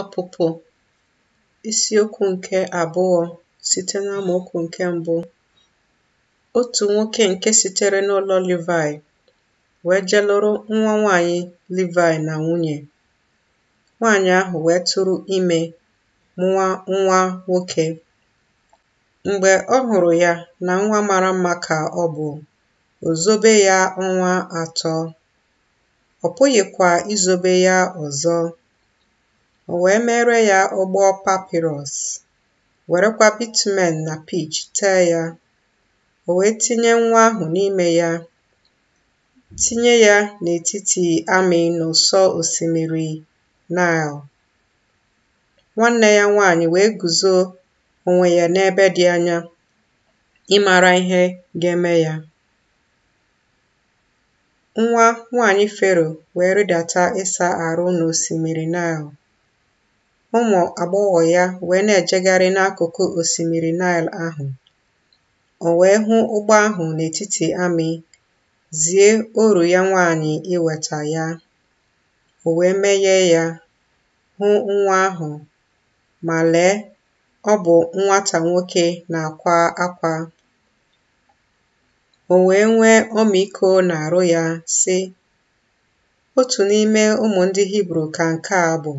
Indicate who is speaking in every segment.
Speaker 1: Ọpụpụ isiokwu nke abụọ site n'amaokwu nke mbụ Otu nwoke nke sitere n'ụlọ livai wee jee nwa nwanyị livai na nwunye. Nwanyị ahụ wee tụrụ ime mụa nwa nwoke. Mgbe ọ hụrụ ya na nwa mara mma ka ọ bụ, ozobe ya ọnwa atọ. Ọ pụghịkwa izobe ya ọzọ o wee mere ya ụgbọ papịrọs werekwa bitumen na pich tee ya o wee tinye nwa ahụ n'ime ya tinye ya n'etiti amị n'ụsọ osimiri Nile nwanne ya nwaanyị wee guzo onwe ya n'ebe dị anya ịmara ihe ga-eme ya nwa nwanyị Fero wee rịdata ịsa arụ n'osimiri Nile ụmụ agbọghọ ya wee na-ejegharị n'akụkụ osimiri Naịl ahụ. O wee hụ ụgbọ ahụ n'etiti amị, zie oru ya nwaanyị iweta ya. O wee meghee ya, hụ nwa ahụ, ma lee, ọ bụ nwata nwoke na-akwa akwa. O wee nwee ọmịiko arụ ya, si “Otu n'ime ụmụ ndị Hibru ka nke a bụ.”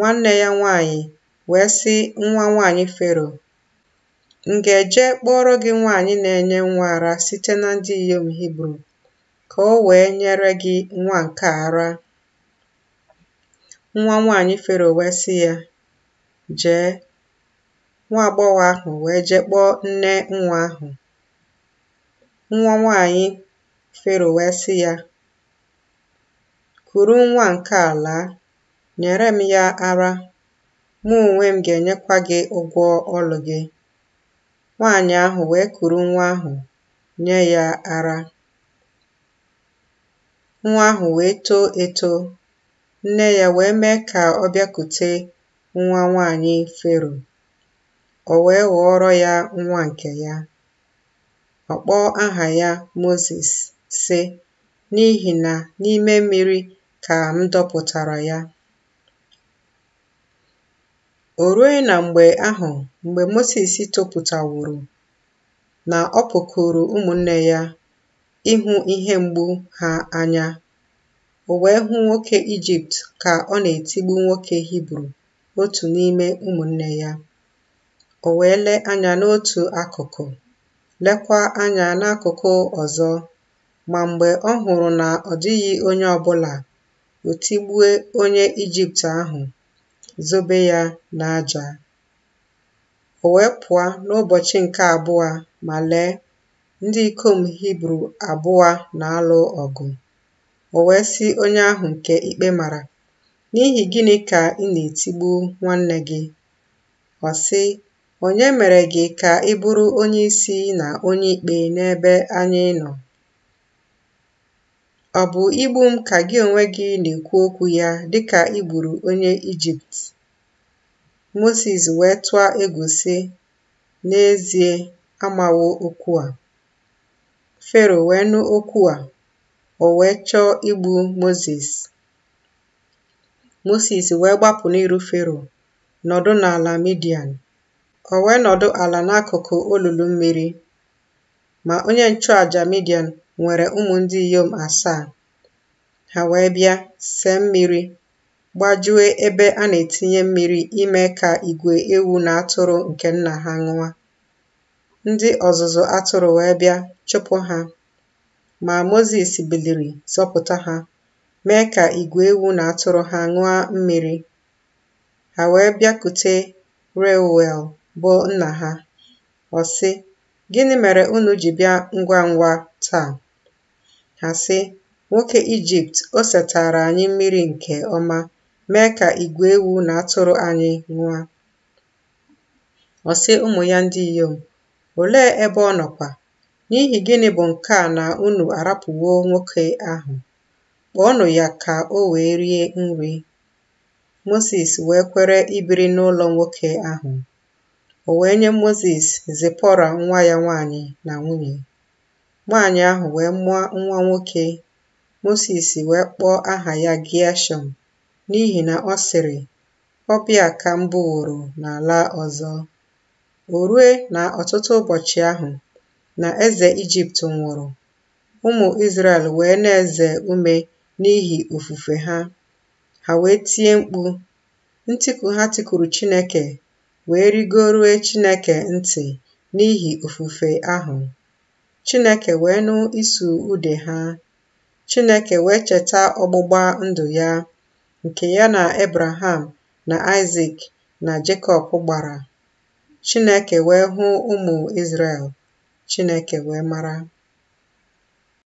Speaker 1: nwanne ya nwanyị wee sị nwa nwaanyị Fero m ga-eje kpọrọ gị nwaanyị na-enye nwa ara site na ndị inyom Hibru ka o wee nyere gị nwa nke ara nwa nwaanyị Fero wee sị ya jee nwa agbọghọ ahụ wee jee kpọọ nne nwa ahụ nwa nwaanyị Fero wee sị ya kuru nwa nke ala nyere m ya ara mụ onwe m ga-enyekwa gị ụgwọ ọlụ gị nwaanyị ahụ wee kuru nwa ahụ nye ya ara nwa ahụ wee too eto nne ya wee mee ka ọ bịakute nwa nwaanyị fero o wee ghọọrọ ya nwa nke ya ọ kpọọ aha ya Mozis sị n'ihi na n'ime mmiri ka m dọpụtara ya O rue na mgbe ahụ mgbe Mosis topụtaworo na ọ pụkụrụ ụmụnne ya ịhụ ihe mgbu ha anya, o wee hụ nwoke Ijipt ka ọ na-etigbu nwoke Hibru otu n'ime ụmụnne ya. O wee lee anya n'otu akụkụ, lekwa anya n'akụkụ ọzọ, ma mgbe ọ hụrụ na ọ dịghị onye ọbụla, o tigbue onye Ijipt ahụ zobe ya n'aja. O wee pụọ n'ụbọchị nke abụọ ma lee, ndị ikom Hibru abụọ na-alụ ọgụ. O wee si onye ahụ nke ikpe mara, N'ihi gịnị ka ị na-etigbu nwanne gị? Ọ sị, Onye mere gị ka ị bụrụ onye isi na onye ikpe n'ebe anyị nọ? Ọ bụ igbu m ka gị onwe gị na-ekwu okwu ya dịka i gburu onye Ijipt? ” Mosis wee tụọ egusi “N'ezie, amawo okwu a.” Fero wee nụ okwu a, o wee chọọ igbu moses Mosis wee gbapụ n'iru Fero, nọdụ n'ala Midian. O wee nọdụ ala n'akụkụ olulu mmiri. Ma onye nchụàjà Midian nwere ụmụ ndị inyom asaa. Ha wee bịa see mmiri, gbajue ebe a na-etinye mmiri ime ka igwe ewu na atụrụ nke nna ha ṅụa. Ndị ọzụzụ atụrụ wee bịa chụpụ ha, ma Mozis biliri zọpụta ha, mee ka igwe ewu na atụrụ ha ṅụa mmiri. Ha wee bịakute Reuel bụ nna ha, ọ sị, Gịnị mere unu ji bịa ngwa ngwa taa? ha sị, “Nwoke Ijipt, o setara anyị mmiri nke ọma, mee ka igwe ewu na atụrụ anyị nwa Ọ sị ụmụ ya ndị inyom, “Olee ebe ọ nọkwa? N'ihi gịnị bụ nke a na unu arapụwo nwoke ahụ? Kpọọnụ ya ka o wee rie nri.” Mosis wee kwere ibiri n'ụlọ nwoke ahụ. O wee nye moses Zipọra nwa ya nwanyị na nwunye. Nwaanyị ahụ wee mụọ nwa nwoke. Mosis wee kpọọ aha ya Gịashọm n'ihi na ọ sịrị, ọbịa ka m bụworo n'ala ọzọ. O rue na ọtụtụ ụbọchị ahụ, na eze Ijipt nwụrụ, ụmụ israel wee na-eze ume n'ihi ofufe ha. Ha wee tie mkpu. ntikwu ha tikuru Chineke wee rigoruo Chineke ntị n'ihi ofufe ahụ. Chineke wee nụ isu ude ha. Chineke wee cheta ọgbụgba ndụ ya nke ya na Ebraham na Isaac na Jekọb gbara. Chineke wee hụ ụmụ Izrel. Chineke wee mara.